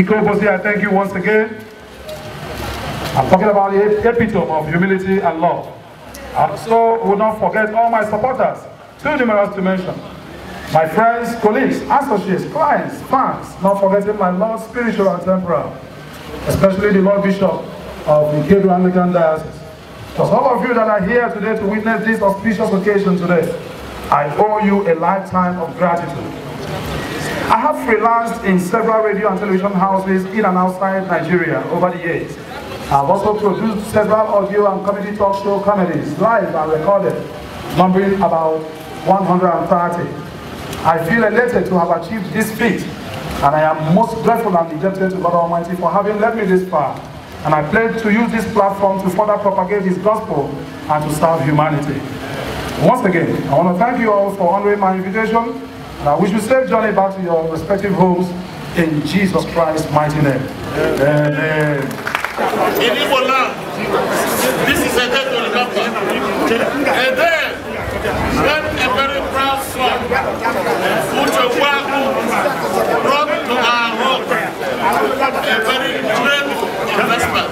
Bosi, I thank you once again. I'm talking about the epitome of humility and love. And so will not forget all my supporters, too numerous to mention. My friends, colleagues, associates, clients, fans, not forgetting my Lord spiritual and temporal, especially the Lord Bishop of the Gabriel Anglican Diocese. For all of you that are here today to witness this auspicious occasion today, I owe you a lifetime of gratitude. I have freelanced in several radio and television houses in and outside Nigeria over the years. I've also produced several audio and comedy talk show comedies, live and recorded, numbering about 130. I feel elated to have achieved this feat, and I am most grateful and indebted to God Almighty for having led me this far. And I pledge to use this platform to further propagate His gospel and to serve humanity. Once again, I want to thank you all for honoring my invitation Now, wish you safe journey back to your respective homes in Jesus Christ's mighty name. Amen. In Igbo this is a day to remember. A day when a very proud son, Uchekwaku, brought to our home a very great investment.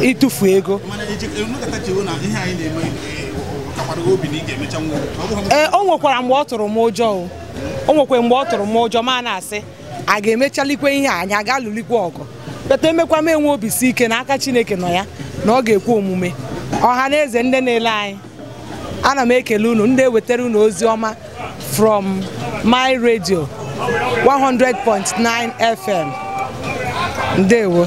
ịtụfu ego ee e, o nwekwara mgbe ọ tụrụ m ụjọ o nwekwa mgbe ọ tụrụ m ụjọ ma na-asị a ga-emechalikwe ihe anyị aga lụlikwe ọgụ peta emekwa m enwe obi si ike n'aka Chineke nọ ya na ọ ga-ekwe omume ọha na eze ndị na-ele anyị ana m ekele unu ndị ewetara unu ozi ọma from my radio 100.9 FM Deu.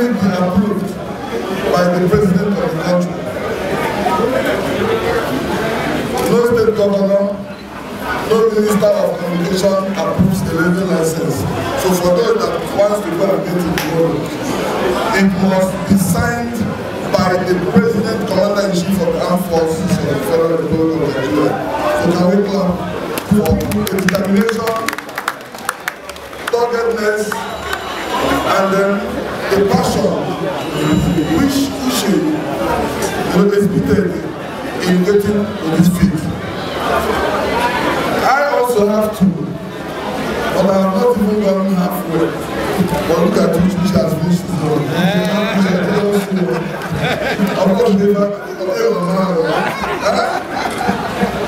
already been approved by the president of the country. No state governor, no minister of communication approves the radio license. So for those that wants to go and get it tomorrow, it must be signed by the president, commander in chief of the armed forces of the Federal Republic of Nigeria. So can we clap for the determination, doggedness, and then a passion which issue was exhibited in getting on this feet. I also have to, but I have not even gone halfway. But look at which which has reached the world. Of course, they have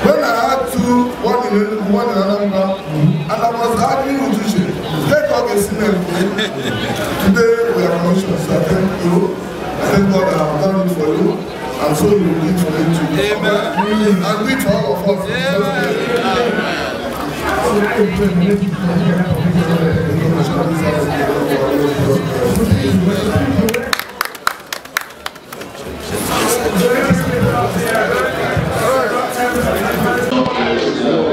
When I had two, one in one in another, and I was having with Uche, take up a sinner today. Thank God that I've done it for you. And so you will do it for me Amen. And we, all of us. Amen. Amen. Thank you.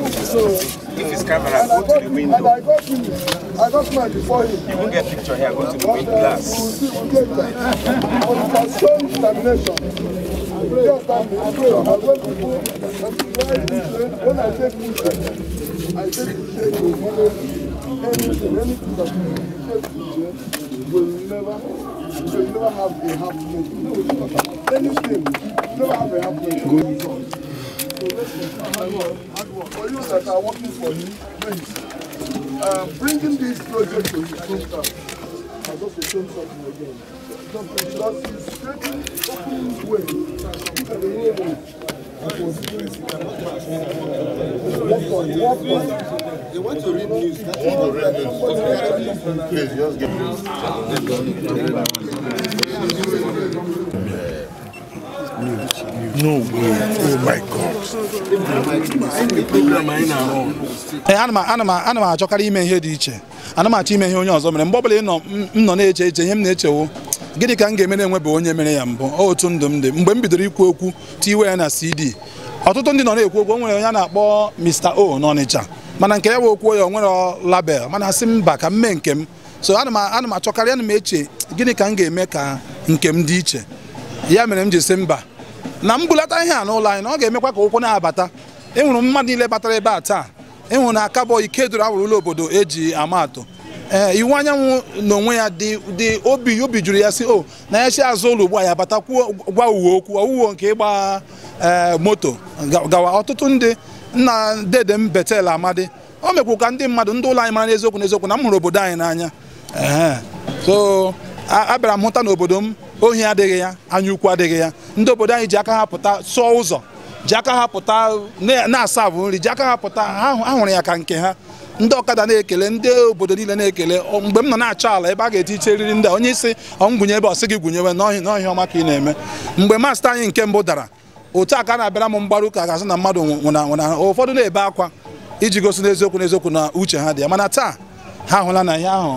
If his camera, go to the window. I got him. I got mine before him. You won't get picture here. Go to the window glass. Uh, we'll see. We'll get that. But it has shown determination. I pray upon me. I pray upon when people, when I take picture, I take picture to follow anything, anything that you take picture will never, will never have a half moment. No, anything, never have a half moment for you that are working for me, please, um, bringing this project to the hometown, I just return something again. Because it's creating open way, the way they want to read news. That's what they Please just give news. No way. Oh my God. Eh, ana m achọkarị ime ihe dị iche ana achọ ime ihe onye ọzọ mere mgbe ọbụla m nọ na-eche eche ihe m na-echewo gịnị ka m ga-eme na-enwebe onye mere ya mbụ otu ndụ m dị mgbe m bidoro ikwu okwu tiwe ya na CD ọtụtụ ndị nọ na-ekwu okwu onwere onye a na-akpọ Mr. O n'Ọnịcha mana nke ya wee okwuo ya onwere label mana si mba ka m mee nke m so ana m achọkarị ana m eche gịnị ka m ga-eme ka nke m dị iche ya mere m ji si mba na mbulata ihe a n'ụlọ anyị na ọ ga-emekwa ka ụkwụ na-abata enwere mmadụ niile batara ebe a taa enwere na akabọ ikeduru awụrụ ụlọ obodo eji ama atụ ee iwu anyanwụ n'onwe ya dị obi obi juru ya si o na ya azụ ụlọ ugbu a ya kwuo gwa uwe okwu owuwo nke ịgba moto gawa ọtụtụ ndị nna dede m betel amadi o mekwu ka ndị mmadụ ndị ụlọ anyị mara n'eziokwu n'eziokwu na m hụrụ obodo anyị n'anya so abịara m hụta n'obodo m ohi adịghị ya anya ukwu adịghị ya ndị obodo anyị ji aka ha pụta sụọ ụzọ ji aka ha pụta na-asa bụ nri ji aka ha pụta ha hụrụ ya ka nke ha ndị ọkada na-ekele ndị obodo niile na-ekele mgbe m nọ na-achọ ala ebe a ga-eti iche riri ndị onye isi ọngwụnye ebe ọ gị gwụnyewe n'ọhịa ọma ka ị na-eme mgbe masta anyị nke mbụ dara otu a ka na-abịara m mgbaru ụka ga-asị na mmadụ nwụna nwụna ụfọdụ na-ebe akwa iji gosi n'eziokwu n'eziokwu na uche ha dị ya mana taa ha hụla na ihe ahụ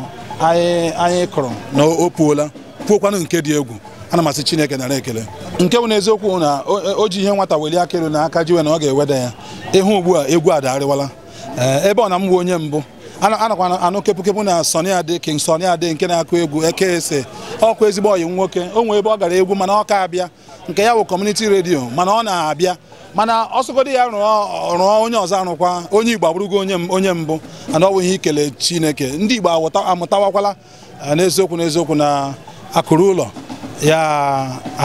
anyị kụrụ na o puola kwuokwanụ nke dị egwu ana m Chineke nara ekele nke bụ na eziokwu na o ji ihe nwata weli aka elu na aka jiwe na ọ ga-eweda ya ịhụ ugbu a egwu adarịwala ebe ọ na m onye mbụ anakwa anụ kepụ na sonia Ade King sonia Ade nke na-akụ egwu eke ese ọkụ ezigbo oyi nwoke o nwee ebe ọ gara egwu mana ọ ka abịa nke ya bụ kọmuniti redio mana ọ na-abịa mana ọsọgodo ya rụọ onye ọzọ arụkwa onye Igbo abụrụgo onye mbụ ana ọ bụ ihe ikele Chineke ndị Igbo amụtawakwala n'eziokwu n'eziokwu na akụrụ ụlọ ya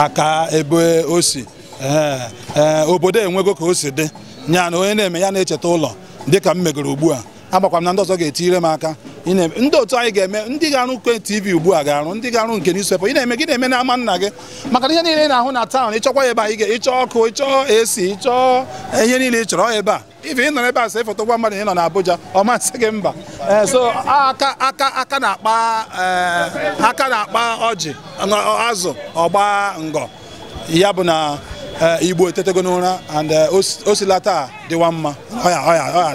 aka ebe o si eh, eh, obodo enwego ka o si dị ya na onye na-eme ya na-echeta ụlọ dịka m megoro ugbu a agbakwa m na ndị ọzọ ga-etinyere m aka ndị otu anyị ga-eme ndị ga-arụ nke tv ugbu a ga-arụ ndị ga-arụ nke newspaper ị na-eme gị na-eme n'ama nna gị maka ihe niile ị na-ahụ na taụn ịchọkwa ebe a ị ga-ịchọ ọkụ ịchọ esi ịchọọ ihe niile ị chọrọ ebe a ife ị nọ ebe a sị foto gwa mmadụ ị nọ na Abuja ọ masị gị mba eh, so aka aka na-akpa eh, aka na-akpa ọjị azụ ọgba ngọ ya bụ na Eh, igbo etetego n'ụra and eh, o taa dịwa mma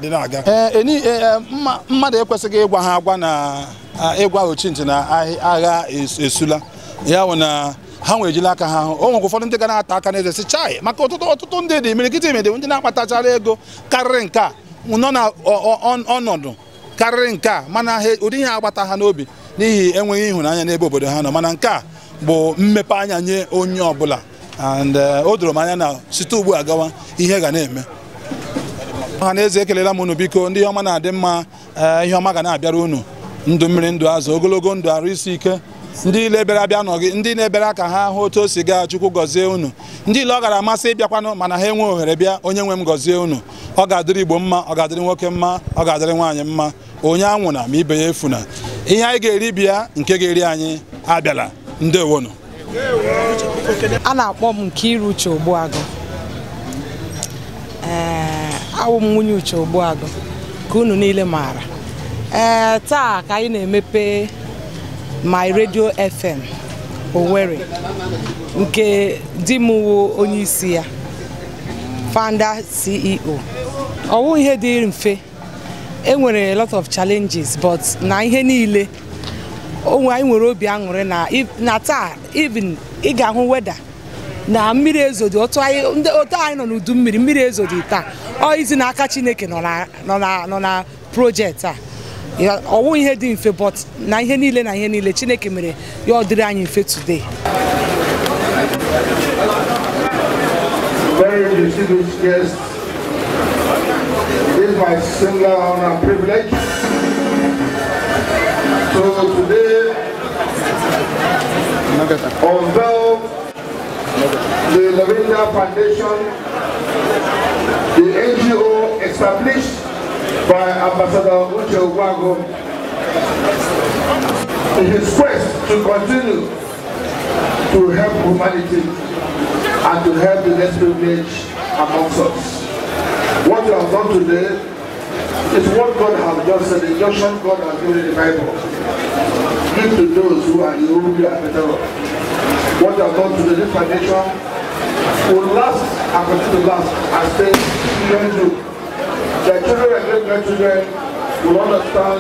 dị na-aga eh, mmadụ ekwesịghị ịgwa ha agwa na ịgwa ochintị na agha esula ya bụ na ha nwere aka ha hụ o nwekwa ụfọdụ ndị ga na-ata aka n'eze si chai maka ọtụtụ ọtụtụ ndị dị imirikiti imede ndị na-akpatachara ego karịrị nke a nọ na ọnọdụ karịrị nke a mana ụdị ihe agbata ha n'obi n'ihi enweghị ịhụnanya n'ebe obodo ha nọ mana nke a bụ mmepe anya nye onye ọbụla and uh, o doro m anya na site ugbu a gawa ihe ga na-eme ọha na eze ekelela m unu biko ndị ọma na-adị mma uh, ihe ọma ga na-abịara unu ndụ mmiri ndụ azụ ogologo ndụ arụ isi ike ndị ile bịara abịa nọ ndị na-ebere aka ha hụ otu o si gaa chukwu gọzie unu ndị ile ọ gara amasị ịbịakwanụ mana ha enwe ohere bịa onye nwe m gọzie unu ọ ga-adịrị igbo mma ọ ga-adịrị nwoke mma ọ ga-adịrị nwaanyị mma onye anwụna ma ibe ya efuna ihe anyị ga-eri bịa nke ga-eri anyị abịala ndewonu a na-akpọ m nke iru uche ogbuagụ ee eh, awụ m nwunye uche ogbuagụ ka unu niile maara ee eh, taa ka anyị na-emepe my radio fm Owerri nke di m wu onyeisi ya founder CEO ọwụ ihe dị mfe enwere lot of challenges but na ihe niile onwe anyị nwere obi aṅụrị na taa even ịga ga-ahụ weda na mmiri ezodi otu anyị nọ n'udu mmiri mmiri ezodi taa ọ izi n'aka Chineke nọ na projekti a ọwụ ihe dị mfe but na ihe niile na ihe niile Chineke mere ya ọ dịrị anyị mfe today is my singular honor and privilege So today, unveil the Lavinda Foundation, the NGO established by Ambassador Uche Ogwago in his quest to continue to help humanity and to help the less privileged amongst us. What you have done today is what God has just said, the injunction God has given in the Bible give to those who are irreparably affected. What you have to the new foundation will last and continue to last as things children do. Their children and great grandchildren will understand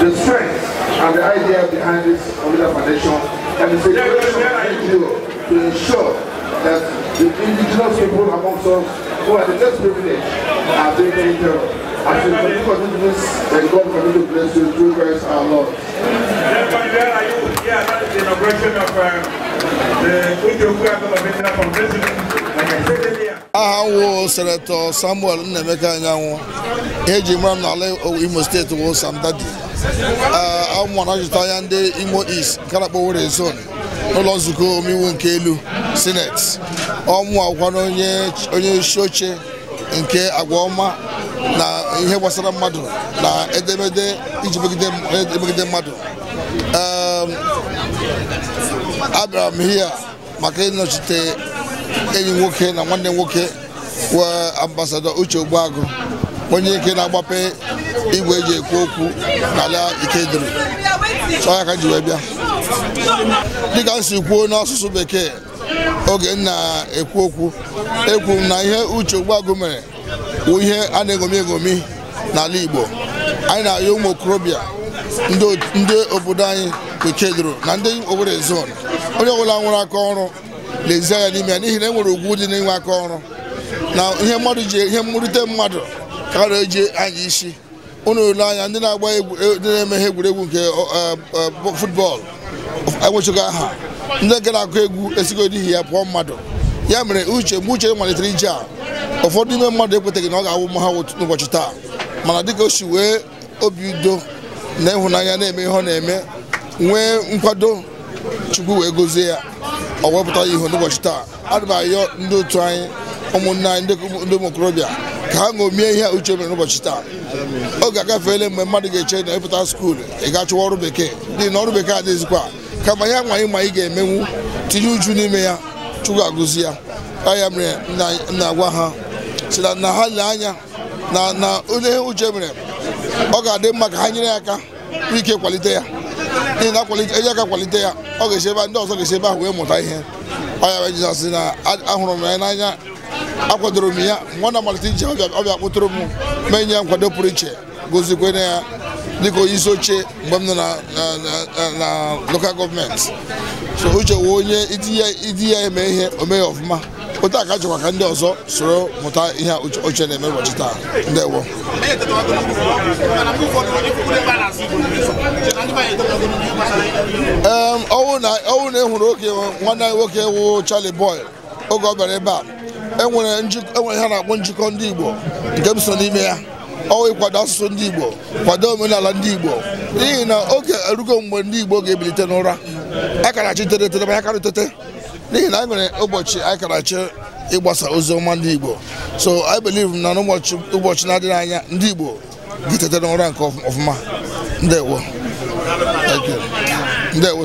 the strength and the idea behind this Omega Foundation and it's a we NGO to ensure that the indigenous people amongst us who are the best privileged are being taken care of. As you continue to bless, and God continue to bless you through Christ our Lord. Where are you? Yeah, that is the inauguration of uh, the Ujokuya Governmental Convention. Like I said earlier. aha wụ senetọ samuel nnaemeka anyanwụ eji mara m n'ala imo steeti wụ samdadi na ah, ajụta anya ndị imo east nke na-akpọ were zone n'ụlọ nzukọ omeiwu nke elu Senet, ọmụ akwụkwọ onye isi oche nke agwa ọma na ihe gbasara mmadụ na edemede iji megide mmadụ ehm, abịara m hia maka ịnọchite enyi nwoke na nwanne nwoke wee ambasado Uche Ogbuagụ onye ike na-agbape igwe eji ekwu okwu n'ala Ikedịrị chọọ ya ka ji wee bịa dịka m si kwuo n'asụsụ bekee oge na-ekwu okwu ekwu na ihe Uche Ogbuagụ mere wụ ihe a na-egomi egomi n'ala Igbo anyị na-ayọ ụmụ okorobịa ndị obodo anyị Okedoro na ndị Owerri zon onye ọbụla nwere aka ọrụ lezie ya n'ime ya n'ihi na e nwere ugwu dị n'inwe aka ọrụ na ihe mmadụ ji ihe mmerite mmadụ karịa eji anya isi ụnụ ole anya ndị na-agba e, ndị na-eme ihe egwuregwu nke e, e, futbọọlụ enwechago aha ndị nke na-akụ egwu esigo n'ihi ya pụọ mmadụ ya mere uche mgbe uche malitere ije a ụfọdụ ime mmadụ ekwetaghị na ọ ga-awụ mma ha n'ụbọchị taa mana dịka o si wee obi udo na ịhụnanya na-eme ihe ọ na-eme nwee nkwado chukwu wee gozie ya ọ wepụta ya n'ụbọchị taa ana m ayọ ndị otu anyị ụmụnne anyị ndị ụmụ okorobịa ka ha ṅomie ihe uche mere n'ụbọchị taa oge agafeela mgbe mmadụ ga-eche na ịpụta skuulu ị ga ọrụ bekee n'ihi na ọrụ bekee adịghịzikwa kama ya nwa anyị ma ga-emenwu tinye uju n'ime ya chukwu agụzi ya ya mere na-agwa ha si na ha lee anya na onye uche mere ọ ga-adị mma ka ha nyere ya aka ike kwalite ya n'ihi na eji aka kwalite ya ọ ga-esi ebe ndị ọzọ ga-esi ebe ahụ wee mụta ihe ọ ya jizọs na ahụrụ m ya n'anya akwadoro m ya na malite ije ọbịa kpụtụrụ m mee nye ya nkwado pụrụ iche gozikwe ya dịka onye isi oche mgbe m nọ na loka gọọmenti so uche wee onye iti ya eme ihe omeghe ọfụma otu aka chọkwa ka ndị ọzọ soro mụta ihe oche na-eme ụbọchị taa ndewo ee ọwụ na ehụrụ oge nwanne anyị nwoke wụ chali Boy oge ọ bịara ebe a enwere e ihe a na-akpọ njikọ ndị Igbo nke m so n'ime ya ọwa ịkwado asụsụ ndị Igbo kwado omenala ndị Igbo n'ihi na oge erugo mgbe ndị Igbo ga-ebilite n'ụra akarachi tere tere ma tete n'ihi na anyị e nwere ụbọchị akarachi ịgbasa ozi ọma ndị Igbo so I believe na ụbọchị na-adịghị anya ndị Igbo ga-etete n'ụra nke ọfụma ndewo ndewo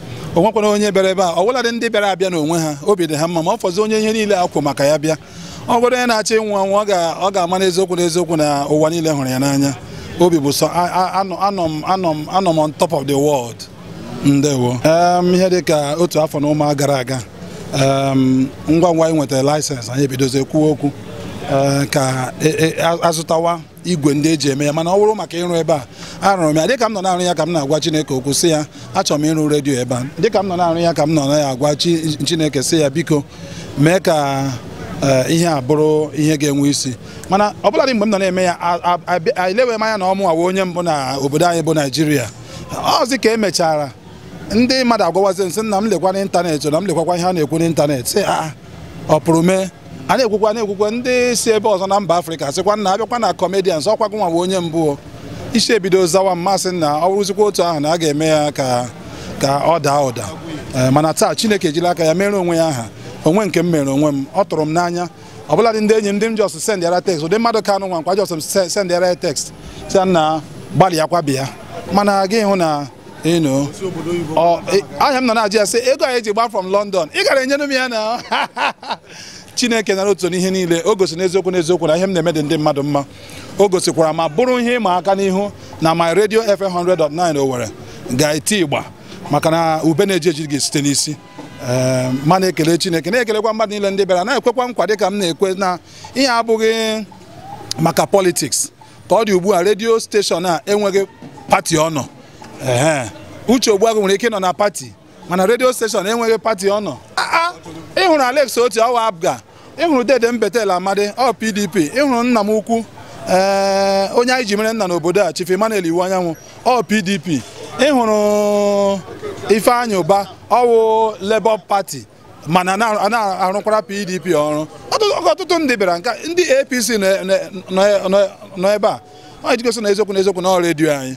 onwekwana onye bịara ebe a ọ bụladị ndị bịara abịa n'onwe ha obi dị ha mma ma ọ fọzi onye ihe niile akwụ maka ya bịa ọ bụrụ onye na-achọ ịnwụ anwụ ọ ga-ama n'eziokwu n'eziokwu na ụwa niile hụrụ ya n'anya obi bụ sọ anọ m on top of the world ndewo ihe dị ka otu afọ na ụma gara aga ngwa ngwa anyị nwetara laịsensị anyị ebidozie kwuo okwu eh, ka e, e, azụtawa igwe ndị eji eme ya mana ọ bụrụ maka ịrụ ebe a arụrụ m ya dịka m nọ na-arụ ya ka m na-agwa chineke okwu sị ya achọrọ m ịrụ redio ebe a dịka m nọ na-arụ ya ka m nọ na ya agwa chineke sị ya biko mee ka eh, ihe a bụrụ ihe ga-enwe isi mana ọbụladị mgbe m nọ na-eme ya elewe m anya na ọmụ awa onye mbụ na obodo anyị bụ naijiria ọzi ka emechara ndị mmadụ agwawazi nsị nna m lekwa n'ịntanetị na m lekwakwa ihe a na-ekwu n'ịntanetị ọ pụrụ mee a na-ekwukwa na-ekwukwa ndị si ebe ọzọ na mba afrịka sịkwa na abịakwa na comedians ọkwa gụnwa bụ onye mbụ isi ebido zawa mmasị na ọ bụrụzikwa otu ahụ na a ga-eme ya ka ka ọ daa ụda eh, mana taa chineke ejila aka ya mere onwe ya aha onwe nke m mere onwe m ọ tụrụ m n'anya ọ bụladị ndị enyi m ndị m jọs sendịara tekst ụdị mmadụ ka anụ nwa nkwa jọs m sendịara ya tekst sị na gbalịa kwa bịa mana gị hụ na ịnụ e, ahịa m nọ na-ajụ ya sị ego anyị e ji gba from London ị gara enyere m ya na chineke nara otu n'ihe niile o gosi n'eziokwu n'eziokwu na ihe m na-eme dị ndị mmadụ mma o gosikwara ma bụrụ ihe ịma aka n'ihu na my radio FM 100.9 Owerri ga-eti igba maka na ube na-eji eji gị site n'isi ehm, ma na-ekele chineke na-ekelekwa mmadụ niile ndị bịara na-ekwekwa nkwa ka m na-ekwe na ihe abụghị maka politiks ka ọ dị ugbu a redio steshọn a enweghị pati ọ nọ uche ogbuagụ nwere ike ịnọ na pati mana redio steshọn enweghị pati ọ nọ ah, ah, ịhụrụ Alex Otti ọwa abga ịhụrụ dede mbetel amadi ọ pdp ịhụrụ nna m ukwu eh, onye anyị ji mere nna n'obodo a chief Emmanuel iwu anyanwụ ọ pdp ịhụrụ ifeanyị ụba ọwụ Labour Party mana na-arụkwara pdp ọrụ ọtụtụ ndị bịara nke ndị apc nọ ebe a ọ jigosi na eziokwu na eziokwu na ọ redio anyị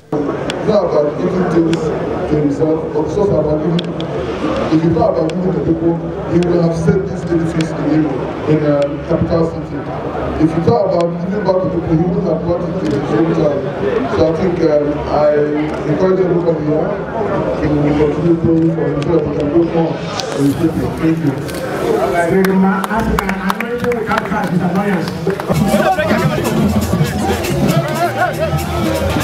If you talk about giving the people, you will have said in Europe, in the uh, capital city. If you talk about giving back to people you would have brought it to the same time, so I think um, I encourage everybody here to continue going for it so that we can more in Thank you. I'm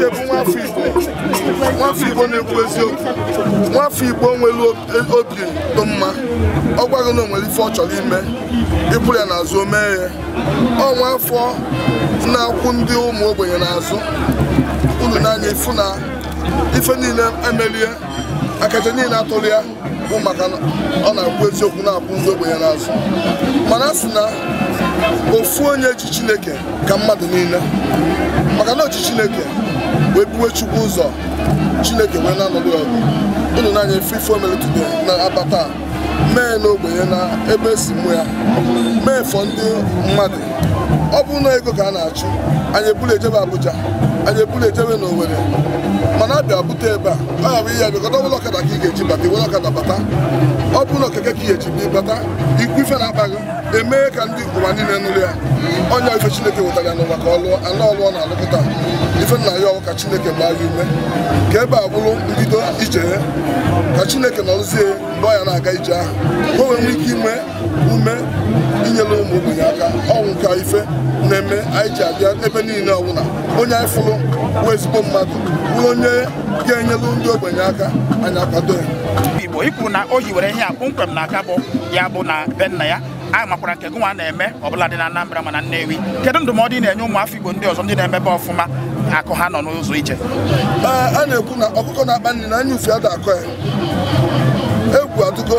Uche bụ nwafọ Igbo Igbo na-ekwu eziokwu nwafọ Igbo nwere obi dị mma ọ gwaghị na o nwere ife ọ chọrọ ime ịpụrụ ya n'azụ o mee ya ọ nwafọ na-akwụ ndị ụmụ ogbenye n'azụ na n'anya ifu na ife niile emerie akacha niile atụrụ ya bụ maka ọ na-akwụ eziokwu na-akwụ ndị ogbenye n'azụ mana na ofu onye ji Chineke ka mmadụ niile maka oji Chineke wee buwe chukwu ụzọ chineke wee na-anọdụ ọgụ ụnụ na-anya efe ife na-abata mee n'ogbenye na ebe si mụ ya mee fọ ndị mmadụ ọ bụ na ego ka a na-achụ anyị ebulu ejebe Abuja anyị ebuli ejebe n'Owerri mana abịa bute ebe a aha bụ ihe a kọta ọbụla ọkada ka ị ga-eji bata iwere ọkada bata ọ bụrụ na okeke ka ị ga-eji bụ bata ikwu ife na-akpa gị emee ka ndị ụwa niile nụrụ ya onye ife chineke nwetara ya n'ụwa ka ọ lụọ anụ ọlụọ na-alụpụta ife nna ya ọwụ ka chineke gbaa ya ume ka ebe a bụrụ mbido ije ka chineke nọrụzie mgbe ọ ya na-aga ije ahụ onwe o ike ime ume inyere ụmụ ogbenye aka ọnwụ ka ife na-eme anyị ji abịa ebe niile ọbụla onye anyị fụrụ bụ ezigbo mmadụ bụrụ onye ga-enyelu ndị ogbenye aka anyị akwado ya igbo ikwu na o hiwere ihe a kpụmkwem na aka bụ ya bụ na be nna ya a makwara nke gụnwa na-eme ọbụla dị na Anambra mana Nnewi kedu ndụmọdụ ị na-enye ụmụafọ Igbo ndị ọzọ ndị na-emebe ọfụma akụ ha nọ n'ụzọ ije a na-ekwu na ọkụkọ na-akpa nri na anya ufe ada akọ ya egwu adụgo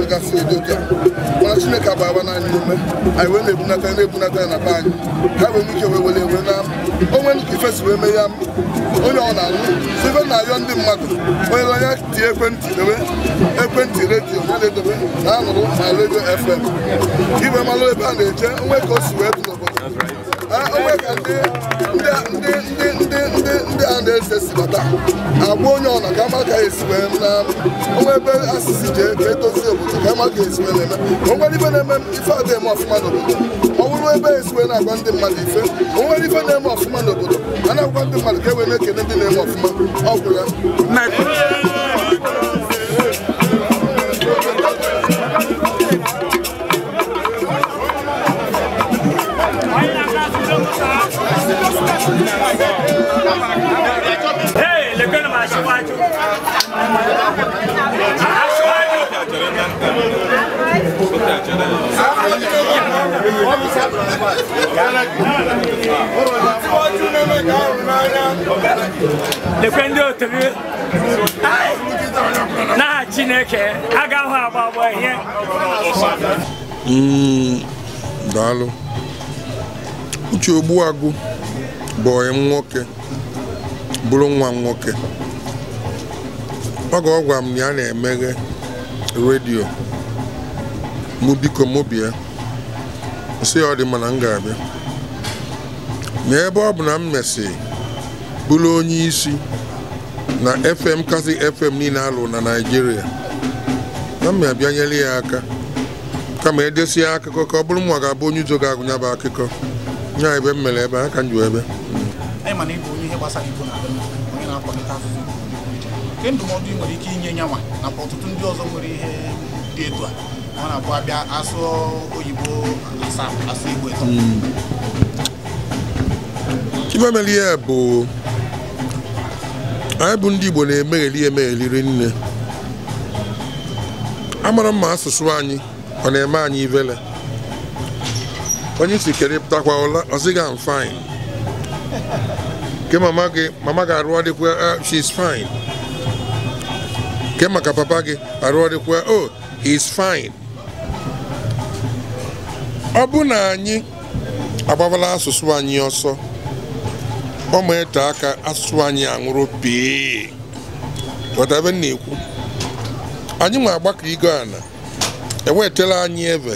gasị edoka mana chineke agbara naanị ume anyị wee na-ebunata na-ebunata na be anyị ha wee nwee wee were wee na onwe ifesi wee mee ya onye ọ na-alụ site na-ayọ ndị mmadụ onye onye tie ekwentị dewe ekwentị redio ya na-edobe na anụrụ na redio fm iwe malụ ebe a na-eje onwe ka o si wee onwe ka ndị a na-ese si bata agwa onye ọna ka ama ka esi wee onwe ebe asịsị ji ka obodo ka ama ka esi wee na-eme onwere ife na-eme ife adịghị eme ọfụma n'obodo ọ bụrụ ebe esiwe na-agwa ndị mmadụ ife onwere ife na-eme ọfụma n'obodo a na-agwa ndị mmadụ ka e wee na-ekene ndị na-eme ọfụma ọgwụ ya lekwe ndị otu gị na Chineke agaghị agba agba ihe mm, daalụ uche Agụ bụ onye nwoke bụrụ nwa m nwoke oge ọ gwara m na ya na-emeghe redio mụ biko mụ bịa nsị ọ dị mana m ga-abịa ma ebe ọ bụ na m mesị bụrụ onye isi na fm kasị fm niile alụ na naijiria na m abịa nyere ya aka kama edesie akụkọ ka ọ bụrụ nwa ga-abụ onye uzo ga-agụnya bụ akụkọ nya ebe m mere ebe a ka m ju ebe ndụmọdụ ị nwere ike inye nyanwa nakwa ọtụtụ ndị ọzọ nwere ihe dị etu a ọ na-abụ abịa asụ oyibo asaa asụ igbo ịtọ hmm. ife mere ihe bụ anyị bụ ndị igbo na-emegheli emegheliri nne amara mma asụsụ anyị ọ na-eme anyị ivele onye isi kere pụtakwa ụla ọzịga m fine ke mama gị mama gị arụ ọdịkwa ah, she's fine ke maka papa gị arụ ọdịkwa oh he's fine ọ bụ na anyị agbabala asụsụ anyị ọsọ ọ ma ete aka asụsụ anyị anwụrụ pee ebe na-ekwu anyị ma agbakọ igo ana enwetela anyị ebe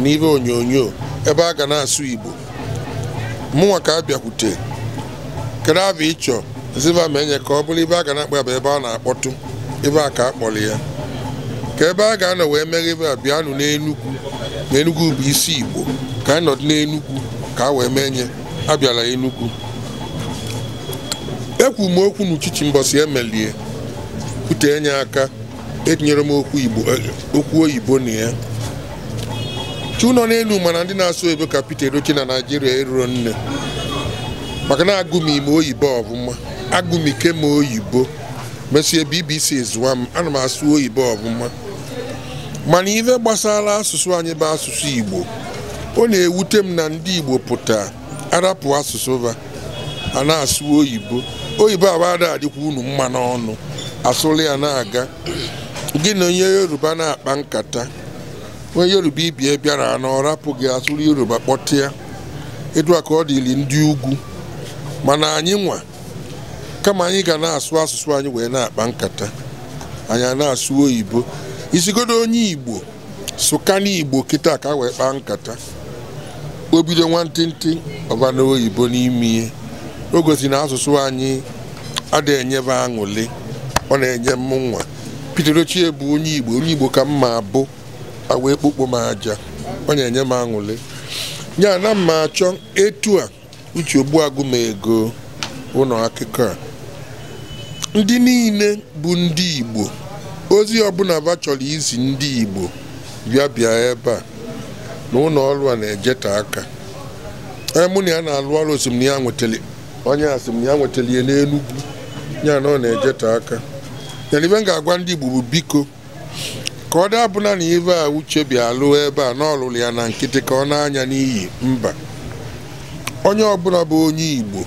na ibe onyonyo ebe a ga na-asụ Igbo mụnwa ka a bịakwute kedu abụ ịchọ ziva menye ka ọ bụrụ ibe a ga na-akpọ ebe a na-akpọtụ ebe a ka a kpọrọ ya ka ebe a ga-anọ wee mere ebe a bịanụ n'enugwu na bụ isi igbo ka anyị nọdụ n'enugwu ka a wee mee nye abịala enugwu ekwu m okwu n'uchichi mbọsi emelie kwute enye aka etinyere m okwu eh, oyibo na ya chi nọ n'elu mana ndị na-asụ ebe ka pete Edochie na Naijiria eruro nne maka na agụm ime oyibo ọvụma agụmike m oyibo mesie BBC zụwa m ana m asụ oyibo ọvụma mana ife gbasara asụsụ anyị bụ asụsụ Igbo ọ na-ewute m na ndị Igbo pụta arapụ asụsụ va a na-asụ oyibo oyibo abada adịkwa unu mma n'ọnụ asụrụ ya na-aga gị na onye Yoruba na-akpa nkata onye Yoruba ibie bịara na ọ rapụghị asụrụ Yoruba kpọtịa edua ka ọ dịrị ndị ugwu mana anyị nwa kama anyị ga na-asụ asụsụ anyị wee na-akpa nkata anyị a na-asụ oyibo isigodo onye igbo sụkana igbo kịta ka wee kpaa nkata o bido nwantịntị ọbana oyibo n'ime ihe o gosi na asụsụ anyị adịghị enyebe aṅụli ọ na-enye m nwa Peter Ochie bụ onye igbo onye igbo ka mma abụ wee ekpokpo m aja ọ na-enye m aṅụli ya na mma achọ etu a uche ogbu m ụlọ akụkọ a ndị niile bụ ndị igbo ozi ọbụla ba chọrọ izi ndị Igbo bịa bịa ebe a na ụlọ ọrụ a na-ejeta aka ee mụ na ya na-alụ ọrụ osimiri ya nwetara onye asị m ya nwetara ihe n'Enugwu ya na ọ na-ejeta aka Nyere ibe m ga-agwa ndị Igbo bụ biko ka ọ dabụla na ibe a uche bịa lụọ ebe a na ọlụlụ ya na nkịtị ka ọ na-anya n'iyi mba onye ọbụla bụ onye Igbo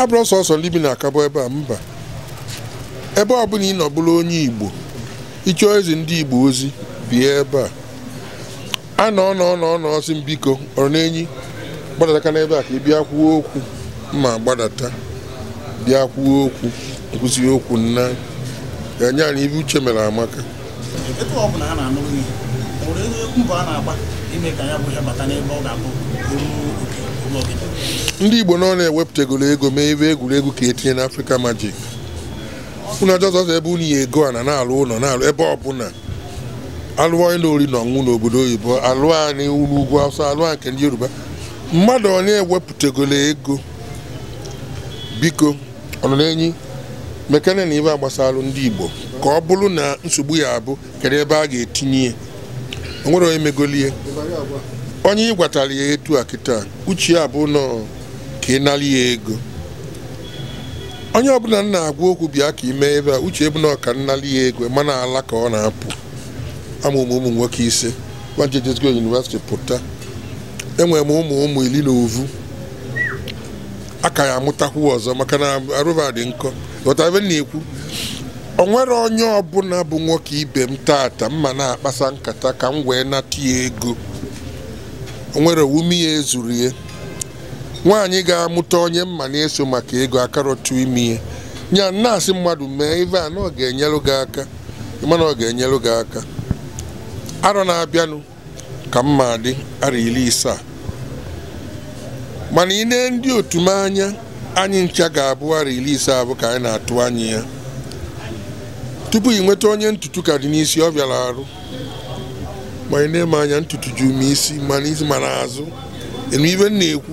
abụrụ sọsọ ndị bi na akabụ ebe a mba ebe ọ bụla ị nọbụrụ onye Igbo ịchọọ eze ndị Igbo ozi bie ebe a a nọ n'ọnọ si biko ọrụ n'enyi gbadata n'ebe a ka ị bịa kwuo okwu ma gbadata bịa kwuo okwu nkwụsị okwu nna ga-enye anyị ibe uche mere amaka ndị Igbo nọ na-ewepụtagoro ego mee ebe egwuregwu ka etinye n'Africa Magic unu ajọzọzọ ebe unu ya ego a na na-alụ ụlọ na-alụ ebe ọbụla alụọ ịlụ ori na n'obodo oyibo alụọ anyị unu ugwu awụsa alụọ nke ndị yoruba mmadụ onye ewepụtagolo ego biko ọnọ na-enyi mekane na ibe agbasalụ ndị igbo ka ọ bụrụ na nsogbu ya abụ kedu ebe a ga-etinye ya onwere onye megolie onye ị gwatara ya etu a kịta uche ya nọ ka ị nara ya ego onye ọbụla m na-agwa okwu bịa ka ime ebe a uche ebuna ọka nnali ya ego mana ala ka ọ na-apụ amụmụ ụmụ nwoke ise wajedezgo yunivesiti pụta enwere m ụmụ ụmụ iri na ovu ka ya amụtakwu ọzọ maka na arụba dị nkọ ghọtabe na-ekwu o nwere onye ọbụla bụ nwoke ibe m tata mma na-akpasa nkata ka m wee nata ya ego o nwere wume ya ezuru ya nwaanyị ga-amụta onye mma na-eso maka ego akarọtụ ime ihe ya na-asị mmadụ mee ive a na ọ ga-enyelụ gị aka mana ọ ga-enyelụ gị aka arọ na-abịanụ ka mma dị arọ iri isaa mana ị nee ndị otu m anya anyị ncha ga-abụ arọ iri isaa abụ ka anyị na-atụ anya ya tupu ị nweta onye ntutu ka dị n'isi ọ bịara arụ ma ị na-eme anya ntutu ji ume isi mana n'isi ma azụ. enu ibe m na-ekwu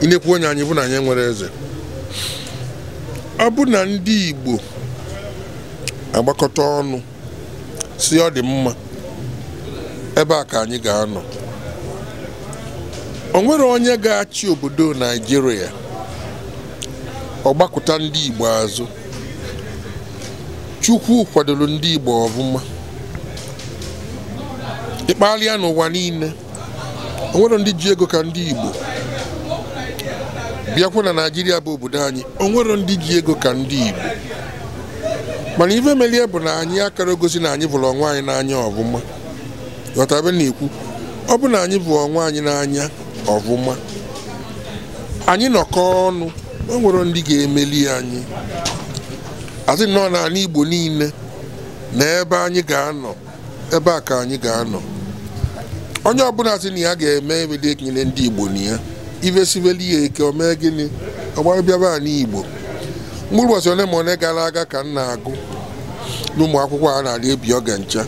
inekwu onye anyị bụ na anyị nwere eze ọ bụ na ndị Igbo agbakọta ọnụ si ọ dị mma ebe a ka anyị ga-anọ onwere onye ga-achị obodo Naịjirịa ọgbakọta ndị Igbo azụ Chukwu kwadoro ndị Igbo ọbụma ịkpalịa n'ụwa niile o ndị ji ego ka ndị Igbo bịakwa na naijiria bụ obodo anyị o nwero ndị ji ego ka ndị igbo mana ife melie bụ na anyị akara gosi na anyị bụrụ ọnwa anyị n'anya ọvụma ghọtabe na-ekwu ọ bụ na anyị bụ ọnwa anyị n'anya ọvụma anyị nọkọ ọnụ o nwere ndị ga-emeli anyị asị nọ n'ala igbo niile na ebe anyị ga-anọ ebe a ka anyị ga-anọ onye ọbụla sị na ya ga-eme ebe dị ekele ndị igbo na ya ihe ya eke omee gịnị ọgbarabịaba baa igbo mkpụrụ ụbọchị ole ma ole gara aga ka m na-agụ n'ụmụ akwụkwọ a na-arị ebi oge ncha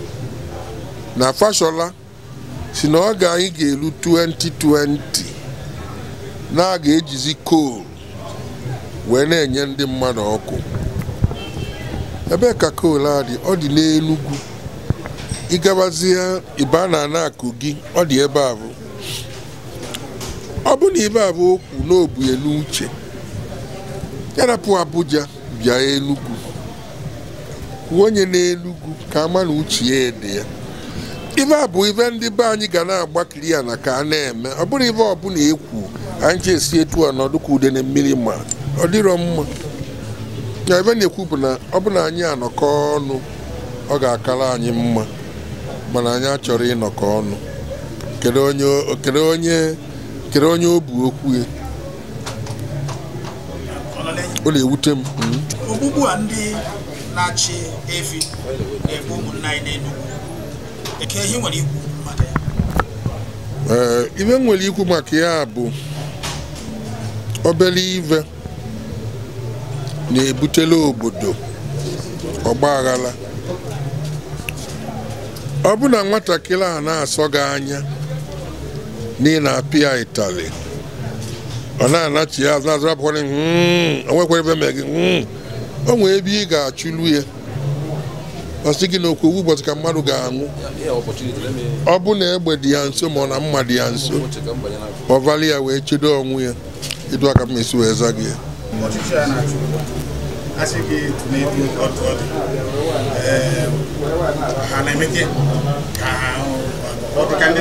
na fashola si na ọ ga anyị ga-eru 2020 na a ga-ejizi kol wee na-enye ndị mmadụ ọkụ ebe ka kol a dị ọ dị n'Enugwu ịgabazie ibe na akụ gị ọ dị ebe a bụ. bụrụ na ibe abụ okwu n'obu elu yarapụ Abuja bịa Enugu onye n'Enugu ka ama na uche ya ede ya ibe abụ ibe ndị be anyị ga na kiri ya na ka a na-eme ọ bụrụ ibe ọbụla ekwu anyị ji esi etu a na ọdụkọ ude na mmiri ma ọ dịrọ mma na ebe na-ekwu bụ na ọ bụla anyị anọkọ ọnụ ọ ga-akara anyị mma mana anyị achọrọ ịnọkọ ọnụ kedu onye kere onye o bu okwu ya ọ na-ewute m hmm. ogbugbu a ndị na-achị efi na-egbu ụmụnna anyị dị ka eh, m nwere ikwu maka ya bụ obere ive na-ebutela obodo ọgbaghara ọ bụ na nwatakịrị a na-asọ gị anya n'ihi na apịa itali ọ na-anachi ya azụ azụ apụkwara onwekwara ebe mee gị nwee ebe ị ga-achụlu ya ọ sị gị owu ụbọchị ka mmadụ ga-anwụ ọ bụ na egbe dị ya nso ma ọ na mma dị ya nso ọ ya wee chedo ọnwụ ya ịdụ aka m wee gị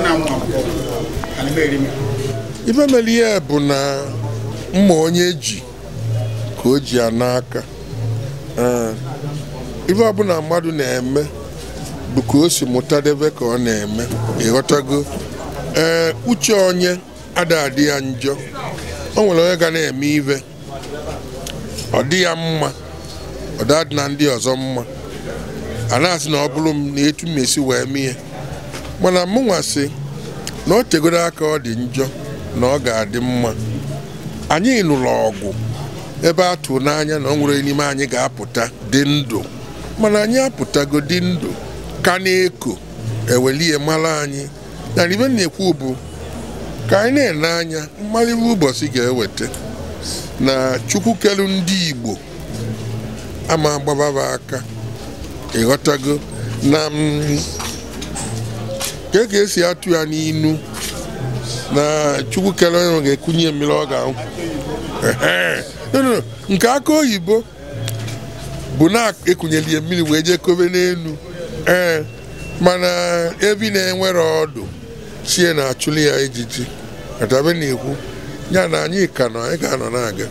ya ife mere ihe bụ na mma onye ji ka o ji ya n'aka eh, ife ọbụla mmadụ na-eme bụ ka o si mụta debe ka ọ na-eme ịghọtago ee eh, uche onye ada adị ya njọ o nwere onye ga na-eme ive ọ dị ya mma ọ dadị na ndị ọzọ mma a na-asị na ọ bụrụ m na etu m esi wee mee mana mụnwa si na o chegoro aka ọ dị njọ na ọ ga-adị mma anyị nụrụ ọgụ ebe a n'anya na ọ nwere n'ime anyị ga-apụta dị ndụ mana anyị apụtago dị ndụ ka na-eko ewelie mara anyị na ibe na-ekwu bụ ka anyị na-ele anya mmalịwe ụbọchị ga-eweta na chukwu ndị igbo ama agbababa aka ịghọtago na E ka esi atụ ya n'inu na chukwu kere onye ga-ekunye mmiri ọ ga-anwụ nke aka oyibo bụ na-ekunyeli ya mmiri wee jee kobe n'elu ee mana ebi na-enwere ọdụ chie na-achụli ya ejiji atabe na-ekwu ya na anyị ka nọ anyị ga-anọ na-aga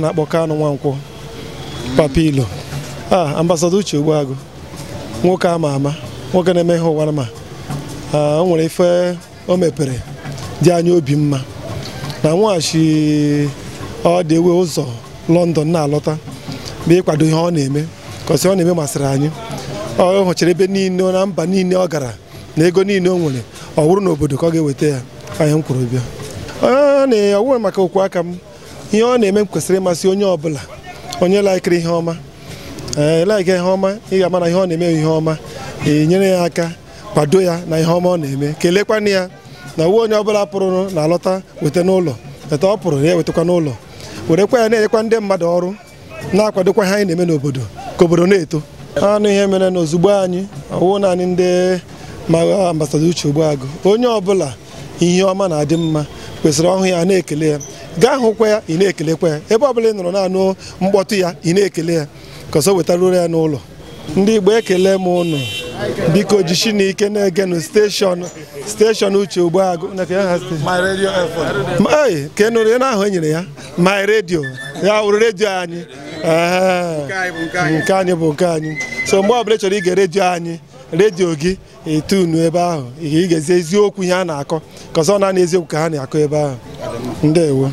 a na-akpọ nwa Nwankwọ papilo a ah, ambasada Uche Ogbuagụ nwoke ama ama nwoke na-eme ihe ụwa ma ah, o nwere ife o mepere dị anya obi mma na nweghachi ọ dị ewe ụzọ lọndọn na-alọta bụ ịkwado ihe ọ na-eme kọsi ọ na-eme masịrị anyị ọ hụchara ebe niile na mba niile ọ gara na ego niile o nwere ọ wụrụ n'obodo ka ọ ga-eweta ya anyị m kwurụ bịa ah, ọ na-ewe maka okwu aka m ihe ọ na-eme kwesịrị ịmasị onye ọbụla onye laikiri ihe ọma laiki ihe ọma ị ga-ama na ihe ọ na-eme ihe ọma enyere ya aka kwado ya na ihe ọma ọ na-eme kelekwanụ ya na uwe onye ọbụla pụrụ na alọta weta n'ụlọ eta ọ pụrụ ya ewetakwa n'ụlọ werekwa ya na-enyekwa ndị mmadụ ọrụ na-akwadokwa ha anyị na-eme n'obodo ka obodo na-eto anụ ihe mere na ozugbo anyị ọwụ naanị ndị ma ambasada uche agụ onye ọbụla ihe ọma na-adị mma kwesịrị ọhụ ya na-ekele ya gaa hụkwa ya ị na-ekelekwa ya ebe bụla ị nọrọ naanụ mkpọtụ ya ị na-ekele ya ka ọsọ ya n'ụlọ ndị Igbo ekele m ụnụ biko jishi na ike na-egenu steshọn steshọn uche Ogbuagụ ka ị e na ahụ e nyere ya my redio ya wụrụ redio anyị nke anyị bụ nke anyị so mgbe ọbụla ị chọrọ ige redio anyị redio gị etunu ebe ahụ ị ga-ezi eziokwu ihe a na-akọ ka na n'eziokwu ka ha na-akọ ebe ahụ ndewo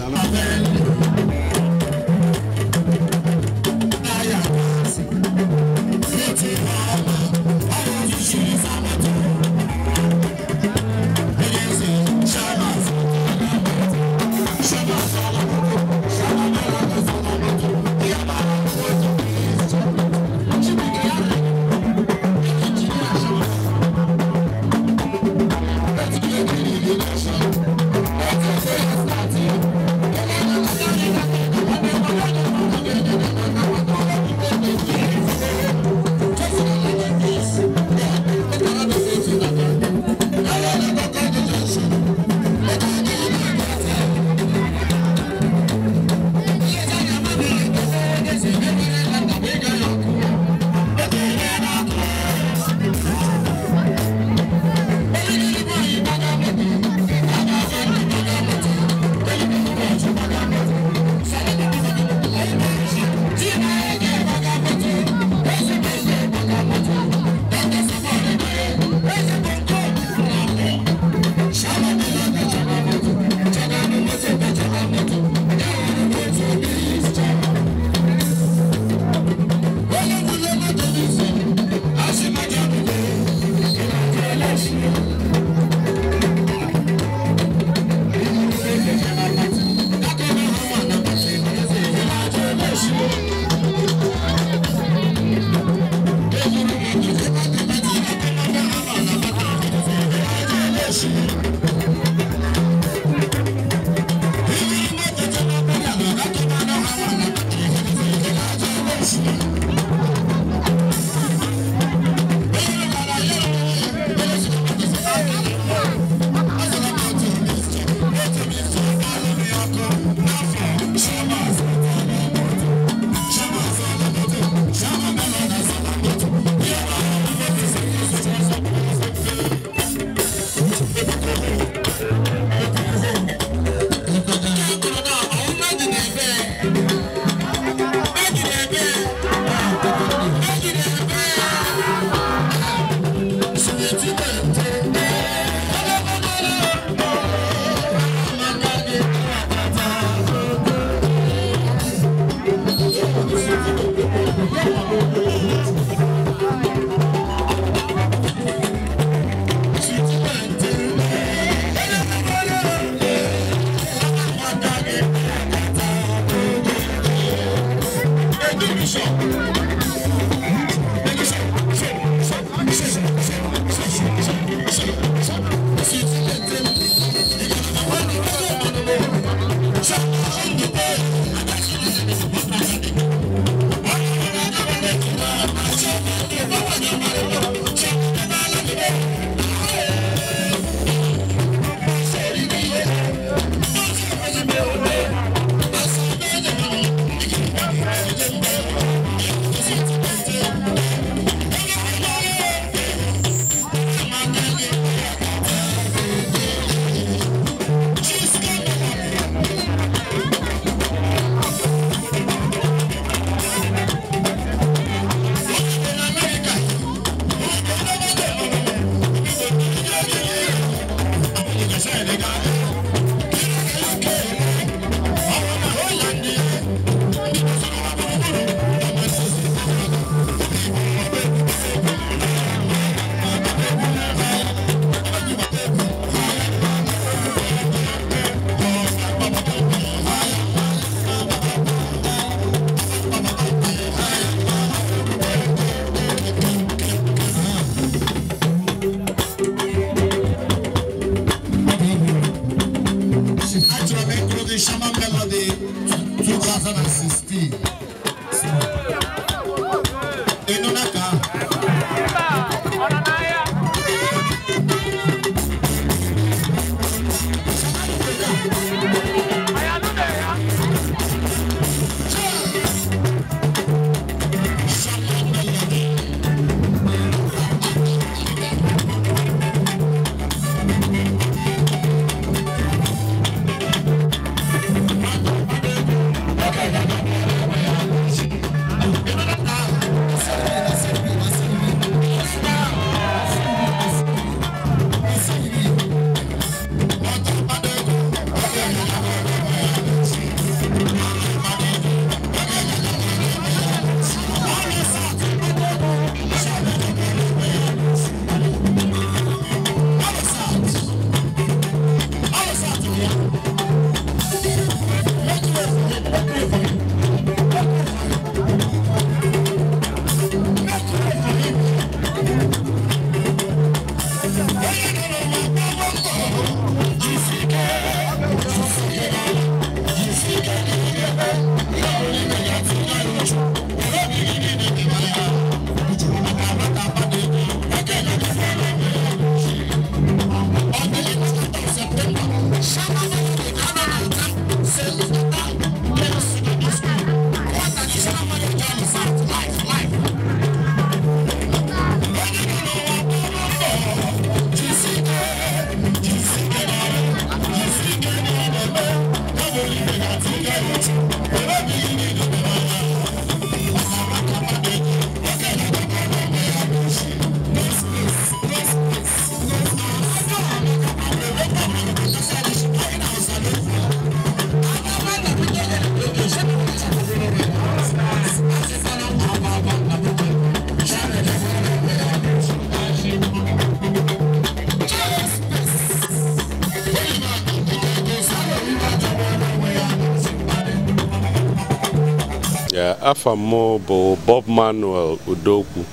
afa m bụ Bob Manuel Udokwu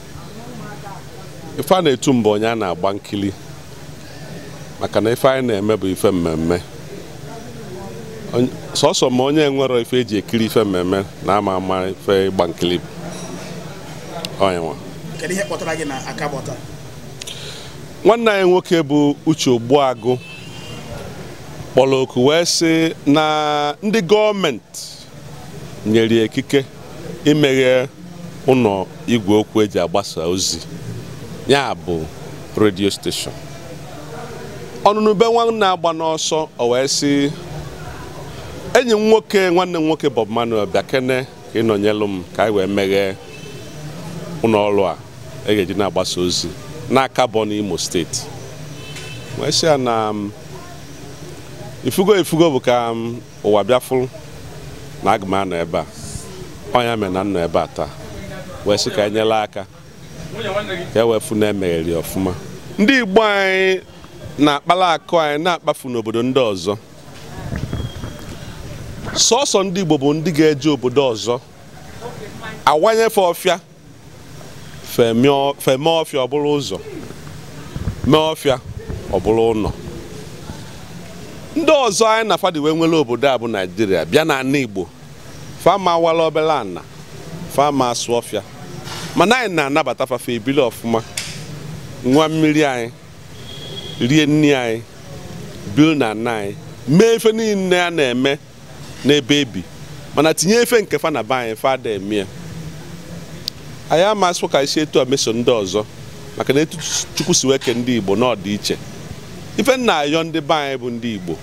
ife a na-etu mbụ onye a na-agba nkili maka na ife anyị na-eme bụ ife mmemme sọsọ ma onye nwere ife eji ekiri ife mmemme na ama ama ife ịgba nkili nwanne anyị nwoke bụ Uche Ogbuagụ kpọrọ oku wee sị na ndị gọọmenti nyere ikike imeghe ụlọ igwe okwu eji agbasa ozi ya bụ redio steshọn ọnụnụ be nwanne agba n'ọsọ o wee sị enyi m nwoke nwanne m nwoke Bob Manuel bịa kene ka ịnọnyelụ m ka anyị wee meghee ụlọ ọrụ a e ga-eji na-agbasa ozi n'aka bụ n'Imo steeti wee sị ya na ifugo ifugo bụ ka ụwa bịafụ na aga anọ ebe a ọnya mere na nọ ebe a taa wee sị ka enyela aka ka e wee na emegheri ọfụma ndị Igbo anyị na-akpala akụ anyị na-akpafu n'obodo ndị ọzọ sọsọ ndị Igbo bụ ndị ga-eje obodo ọzọ awanyefe ọfịa feme ọfịa ọ ụzọ mee ọfịa ọ ụlọ ndị ọzọ anyị na fadi wee nwere obodo a bụ Naijiria bịa na Igbo fama awala obere ana fama asụ ọfịa mana anyị na-anabata fafe ebili ọfụma nwa mmiri anyị rie nni anyị bil na nna anyị mee efe niile a na-eme n'ebe ebi mana tinye efe nke fa na ba anyị fada emie anyị amasị ka isi etu ameso ndị ọzọ maka na etu chukwu si weke ndị igbo n'ọdịiche ife nna ayọ ndị be anyị bụ ndị igbo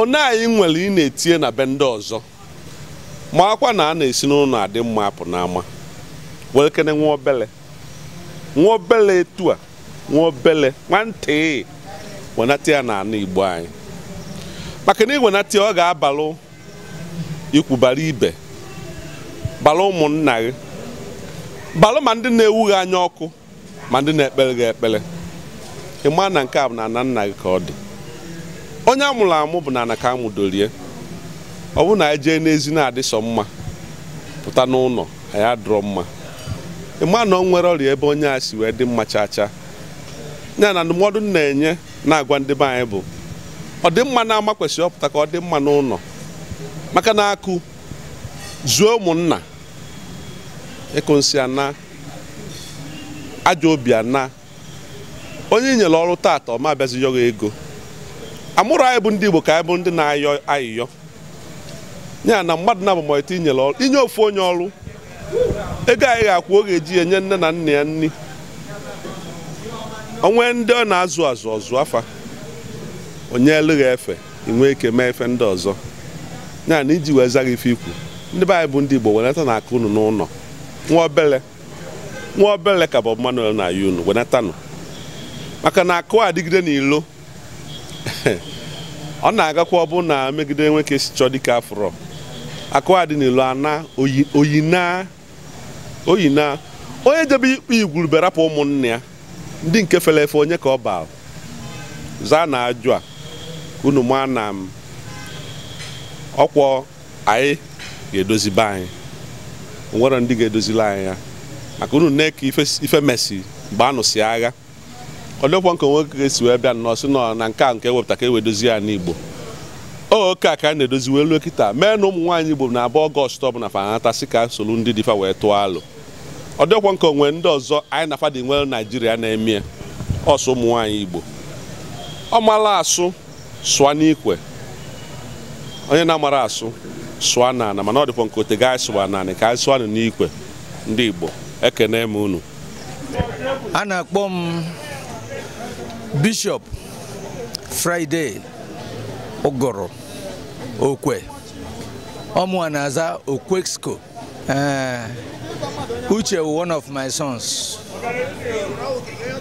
one anyị nwere ị na-etinye na be ndị ọzọ ma akwa na a na-esi n'ụlọ adị mma apụ n'ama were kene nwa obele nwa obele etu a nwa obele nwantị wenata ya na ana igbo anyị maka na iwenata ya ọ ga-abalụ ikwubara ibe balụ ụmụnna gị balụ ma ndị na-ewu anya ọkụ ma ndị na-ekpere gị ekpere ịma na nke a bụ na ana nna gị ka ọ dị onye amụrụ amụ bụ na anaka ka amụdorie ọ bụrụ na anyị jee n'ezi na sọ mma pụta n'ụlọ anyị adụrọ mma ịma na ọ nwere ọrịa ebe onye a si wee dị mma chacha chaa ya na ndụmọdụ na-enye na-agwa ndị be anyị bụ ọ dị mma na-ama kwesịrị ọpụta ka ọ dị mma n'ụlọ maka na akụ zuo ụmụnna ịkụ nsị ana ajọ obi ana onye i nyere ọrụ taata ọma abịazighị ego amụrụ anyị bụ ndị Igbo ka anyị bụ ndị na-ayọ ayịyọ ya na mmadụ na abụmọta inyere inye ofu onye ọrụ ego anyị ga-akwụ oge eji enye nne na nna ya nri onwe ndị ọ na-azụ azụ ọzụ afa onye eleghị efe inwe ike mee efe ndị ọzọ ya na iji wee zaghị ife ikwu ndị be anyị bụ ndị Igbo wenata na aka unu n'ụlọ nwa obele nwa obele ka bụ Manuel na-ayị unu wenatanụ maka na akụ adịgide n'ilo ọ na-agakwa na megide nwoke chọ chọọ dịka afọrọ akụ dị n'elu ana oyina oyina onye jebe ikpe igwurube rapụ ụmụnne ya ndị nke fere efe onye ka ọ baa zaa na ajụ a unu ma na ọkwọ anyị ga-edozibe anyị nwere ndị ga-edozila anyị ya maka unu nne ife mesi mgbe agha olekwa nke nwoke ga-esi wee bịa nnọọ si nọ na nke a nke ewepụta ka ewedozi ya n'Igbo oke a ka a na-edozi wee luo kịta mee na ụmụ nwaanyị Igbo na abụ ọgọst ọbụla fanata si ka solu ndị dịfa wee tụọ alụ ọ dịkwa nke onwe ndị ọzọ anyị na fadị nwere Naijiria na-eme ọsọ ụmụ nwaanyị Igbo ọ mara asụ sụa n'ikwe onye na-amara asụ sụa n'ana mana ọ dịkwa nke ote ga sụwa naanị ka anyị sụa n'ikwe ndị Igbo ekene m unu a na-akpọ m Bishop Friday Ụgụrụ Okwe ọmụwa na-aza Okwexco eh, Uche one of my sons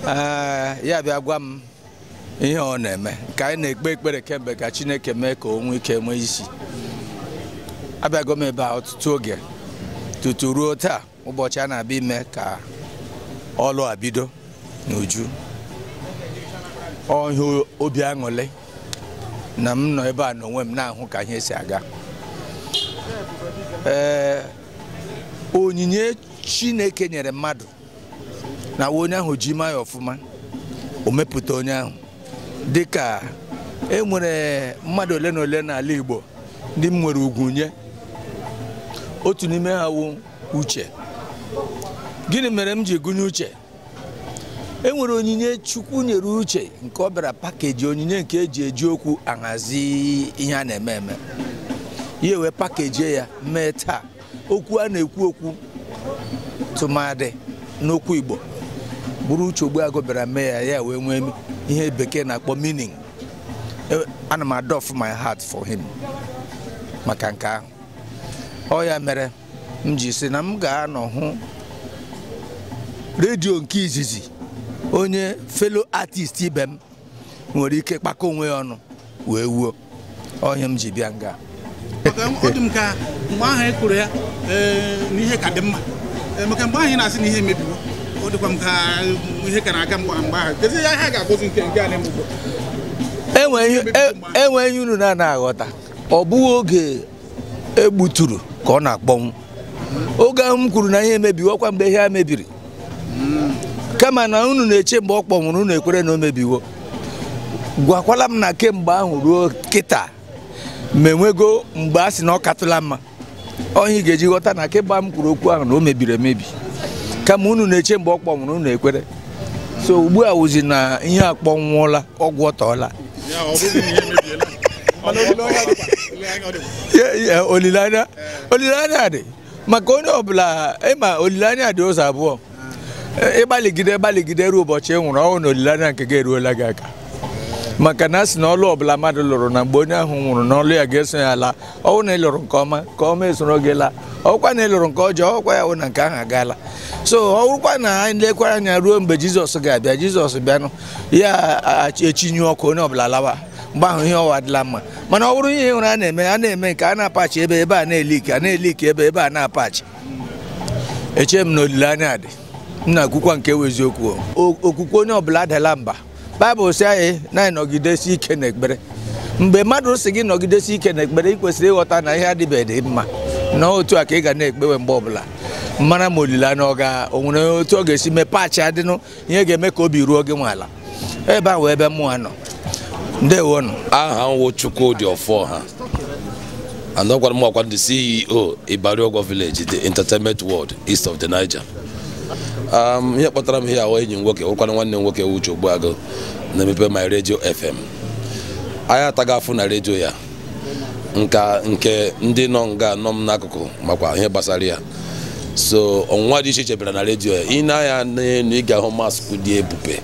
eh, ya bịa gwa m ihe ọ na-eme ka anyị na-ekpe ekpere kemgbe ka Chineke mee ka onwe ike nwee isi abịago m ebe a ọtụtụ oge tutu ruo taa ụbọchị a na-abịa ime ka ọlụ abido bido n'uju ọhịa obi aṅụle na m nọ ebe a n'onwe m na-ahụ ka ihe si aga ee onyinye chineke nyere mmadụ na onye ahụ ji ma ya ọfụma omepụta onye ahụ dịka e nwere mmadụ ole na ole n'ala Igbo ndị m nwere ugwu nye otu n'ime ha wụ uche gịnị mere m ji gụnye uche e nwere onyinye chukwu nyere uche nke ọ bịara pakeji onyinye nke eji eji okwu ahazi ihe a na-eme eme ya wee pakejie ya mee taa okwu a na-ekwu okwu tụmadị n'okwu igbo bụrụ uche ogbuagụ bịara mee ya ya wee nwee ihe bekee na-akpọ meaning e, ana m adof my heart for him maka nke ahụ ọ ya mere m ji si na m ga-anọ hụ redio nke izizi onye felo artist ibe m nwere ike kpakọ onwe ya ọnụ wee wuo ọhịa m ji bịa nga ọ dị m ka mgbe ahụ e kụrụ ya na ihe ka dị mma maka mgbe ahụ ị na-asị na ihe emebiwo ọ dịkwa m ka ihe ka na-aga mgbe ahụ kezie ya ha ga-agọzi nke nke anyị mgbe enwe ihe unu na-ana aghọta ọ bụghị oge egbuturu ka ọ na-akpọnwụ oge ahụ m kwuru na ihe emebiwo ọkwa mgbe ihe a mebiri kama na unu na-eche mgbe ọ kpọnwụrụ unu ekwere na o mebiwo gwakwala m na kemgbe ahụ ruo kịta ma enwego mgbe a sị na ọ katụla mma ọhịa ga-eji ghọta na kemgbe m kwuru okwu ahụ na o mebiri emebi kama unu na-eche mgbe ọ kpọnwụrụ unu ekwere so ugbu a wụzi na ihe a kpọnwụọla ọgwụ ọtọọla olileanya dị maka onye ọbụla ịma olileanya dị ụzọ abụọ ịgbalịgide ịgbalịgide ruo ụbọchị ị nwụrụ ọnwụ na olileanya nke gị eruola gị aka maka na a sị na ọlụ ọbụla mmadụ lụrụ na mgbe onye ahụ nwụrụ na ọlụ ya ga-eso ya laa ọnwụ na ịlụrụ nke ọma ka ọma esoro gị laa ọkwa na ị lụrụ nke ọjọọ ọkwa ya wụ na nke ahụ agaala so ọwụkwa na anyị lekwara anya ruo mgbe jizọs ga-abịa jizọs bịanụ ya echinyu ọkụ onye ọbụla lawa mgbe ahụ ihe ọwa adịla mma mana ọ bụrụ ihe hụrụ a na-eme a na-eme nke a na-apachi ebe ebe a na ike a na ike ebe ebe a na-apachi eche m na olileanya dị m na-ekwukwa nke bụ eziokwu okwukwe onye ọbụla adala mba baịbụl si anyị na nọgidesi ike n'ekpere mgbe mmadụ si gị nọgidesi ike n'ekpere ị kwesịrị ịghọta na ihe adịbeghị dị mma na otu a ka ị ga na-ekpewe mgbe ọbụla mara ma olileanya ọ ga onwere otu ọ ga-esi mepee achị adịnụ ihe ga-eme ka obi ruo gị nwe ala ebe a wee ebe mụnwa nọ ndewonụ aha nwụ Chukwudi Oforha anọkwara m ọkwa ndị CEO Ibariogor Village the entertainment world east of the Niger Um, ihe kpọtara m ihe ahụ enyi m nwoke wụkwana nwanne m nwoke Uche agụ, na-emepe my radio fm anyị ataghị afụ na redio ya nka nke ndị nọ nga nọ m n'akụkụ makwa ihe gbasara ya so ọnwụnwa dị iche iche bịara na redio ya ị na-anya n'elu ị ga-ahụ dị ebube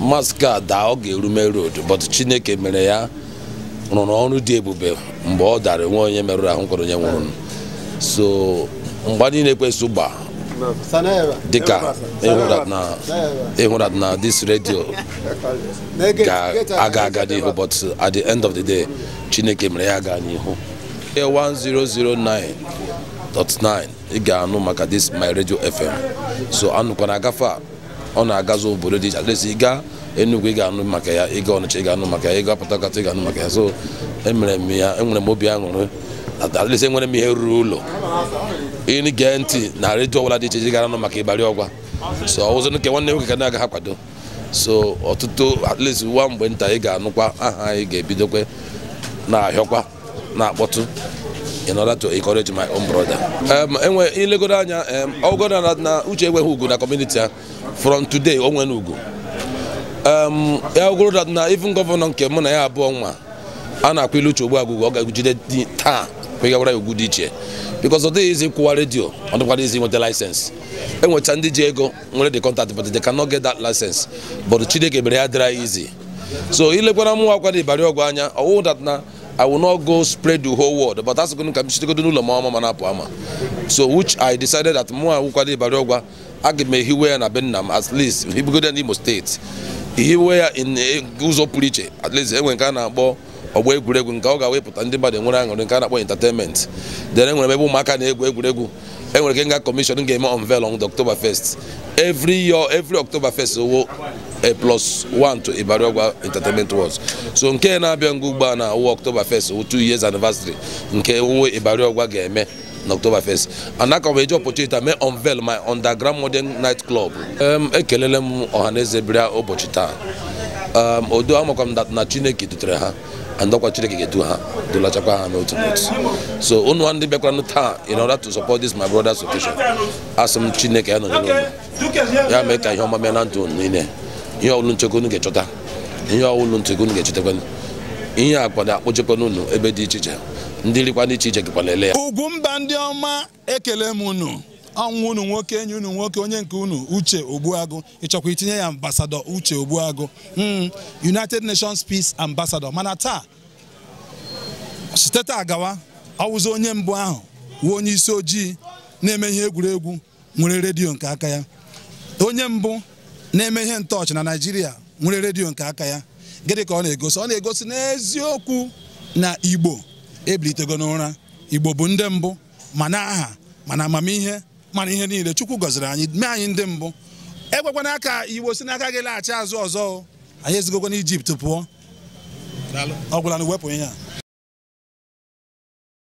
Mask a daa ọ ga-erume road but chineke mere ya rụrụ ọrụ dị ebube mgbe ọ dara nwe onye merụrụ ahụ kwere onye nwụrụ so mgbe anyị na-ekwesị dịka ịhụrụ e e na this radio ga-aga e aga n'ihu but at the end of the day chineke mere ya gaa n'ihu 1009.9 ị ga-anụ maka this my radio fm so anụkwana agafe a ọ na-agazi obodo dị iche adịsị ịga Enugu ị ga-anụ maka ya ịga Ọnịcha ị ga-anụ maka ya ịga Port Harcourt ị ga-anụ maka ya so emere m ya enwere m obi aṅụrị adịsị enwere m ihe ruru ụlọ ịnụ gee ntị na redio ọbụla dị iche iche gara nụ maka ịbarị ọgwa so ọzọ nke nwanne nwoke ka na-aga ha kwado so ọtụtụ at least nwa mgbe nta ị ga-anụkwa aha anyị ga-ebidokwe na-ahịọkwa na-akpọtụ in order to encourage my own brother. Um, enwe ilegoro anya ọgọdọ um, na uche enweghị ugwu na community a from today o nwere ugwu um, ya ogoro na even gọvanọ nke mụ na ya abụọ nwa a na-akwa ilu uche ogbu agụgụ ọ ga-agụjide taa kwegawara ya ugwu dị iche because ọ dịghị ịkwụwa redio ọ dịkwara izi nweta laịsensị e ndị ji ego nwere the kọntaktị but they cannot get that license but Chineke mere ya dịra izi so ilekwara mụ akwa na Ibari anya ọwụ that na I will not go spread the whole world but asịgụ ka m chitegodo n'ụlọ m ọma apụ ama so which I decided that mụnwa awụkwara Ibari Ọgwa aga m ehiwe ya na be m at least ibugode n'Imo steeti ihiwe ya ụzọ pụrụ iche at least enwe nke a na-akpọ ọgba egwuregwu nke ọ ga wepụta ndị mmadụ enwere aṅụrị nke a na-akpọ entertainment dere nwere ebe ụmụaka na-egwu egwuregwu enwere ike nga commission ga-eme on October 1st every year every October 1 owo a eh, plus one to Ibariagwa Entertainment so nke na-abịa ngwa ugbo a na awụ October 1st owo two years anniversary nke owo Ibariagwa ga-eme na 1 and aka eji opportunity mee unveil my underground modern night club um, ekelele m ụbọchị taa um, odo amakwa m na Chineke dutere ha ndọkwa Chineke ga-edu ha dụlachakwa ha n'otu n'otu so unu ndị bịakwaranụ taa in order to support this my brother's occasion asị m Chineke ya nọnyere unu ya mee ka ihe ọma mee na ndụ unu niile ihe ọwụlụ nchekwa unu ga-echọta ihe a nchekwa unu ga-echetakwa ihe ebe dị iche iche ndị rikwana iche ya mba ndị ọma ekele m ọnwụ unu nwoke enyi unu nwoke onye nke unu uche ogbuagụ ịchọkwa itinye ya ambasadọ uche ogbuagụ hmm. united nations peace ambassador mana taa site taa gawa ọwụzi onye mbụ ahụ wee onye isi ojii na-eme ihe egwuregwu nwere redio nke aka ya onye mbụ na-eme ihe ntọọchị na naijiria nwere redio nke aka ya gịnị ka ọ na-egosi ọ na-egosi n'eziokwu na igbo ebilitego n'ụra igbo bụ ndị mbụ ma aha ma na amamihe mana ihe niile chukwu gọziri anyị mee anyị ndị mbụ ekwekwana aka iwo si n'aka gị laghachi azụ ọzọ anyị na ijipt pụọ ọ na wepụ ihe a